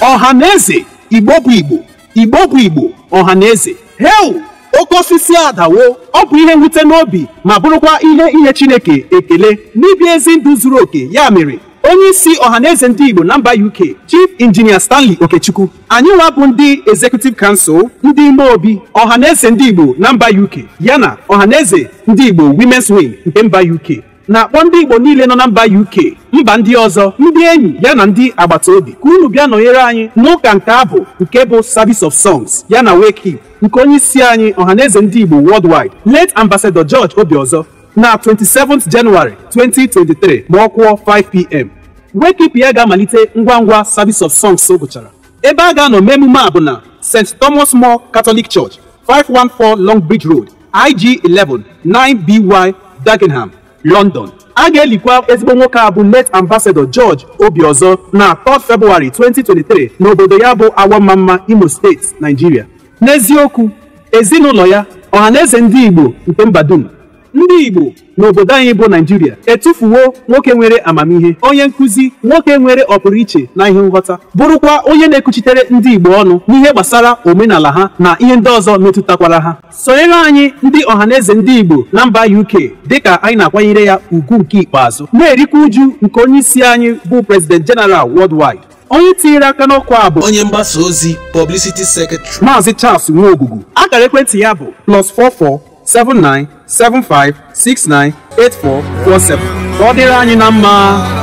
ọha na igbo bụ igbo igbo bụ igbo ọha heu oke osisi adawo ọ bụ ihe nwute n'obi ma bụrụkwa ihe inye chineke ekele n'ibi ezi ndụ zuru oke ya mere onye isi ọhaneze ndị igbo na mba uk chief injinia stanley okechukwu anyị nwa bụ ndị executive council ndị ime obi ọhaneze ndị igbo na mba uk yana ọhaneze ndị igbo women's wing nke mba uk na-akpọ ndị Igbo niile nọ na mba UK mba ndị ọzọ ndị enyi ya na ndị agbata obi ka unu bịa nọnyere anyị n'ụka nke abụ nke bụ Service of Songs ya na Wake nke onye isi anyị ọhaneze ndị Igbo worldwide late Ambassador George Obiozor na 27th January 2023 ma ọ kwụọ 5pm Wake ya ga-amalite ngwa ngwa Service of Songs gụchara ebe a ga-anọ mee emume a bụ na St. Thomas More Catholic Church 514 Long Bridge Road IG 11 9BY Dagenham London a ga-elikwa ezigbo nwoke a bụ late ambassador George obiọzọ na 3 Feb 2023 n'obodo ya bụ Awamamma Imo steeti Nigeria n'eziokwu ezinụlọ ya ọhaneze ndị Igbo nke mba dum ndị Igbo n'obodo anyị bụ Naijiria etufuwo nwoke nwere amamihe onye nkụzi nwoke nwere ọpụrụiche na ihe nghọta bụrụkwa onye na ekuchitere ndị Igbo ọnụ n'ihe gbasara omenala ha na ihe ndị ọzọ metụtakwara ha sonyere anyị ndị ọhaneze ndị Igbo na mba UK dịka anyị na-akwanyere ya ugwu nke ikpeazụ na-erikwa uju nke onyeisi anyị bụ prezident General Worldwide onye tinyere aka n'ọkụ a bụ onye mgbasa ozi Publicity Secretary Maazị Charles Nwogugu akara ekwentị ya bụ plus 44 79 Seven five six nine eight four ka ọ dịrị anyị na mma